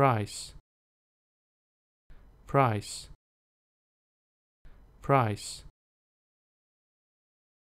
price price price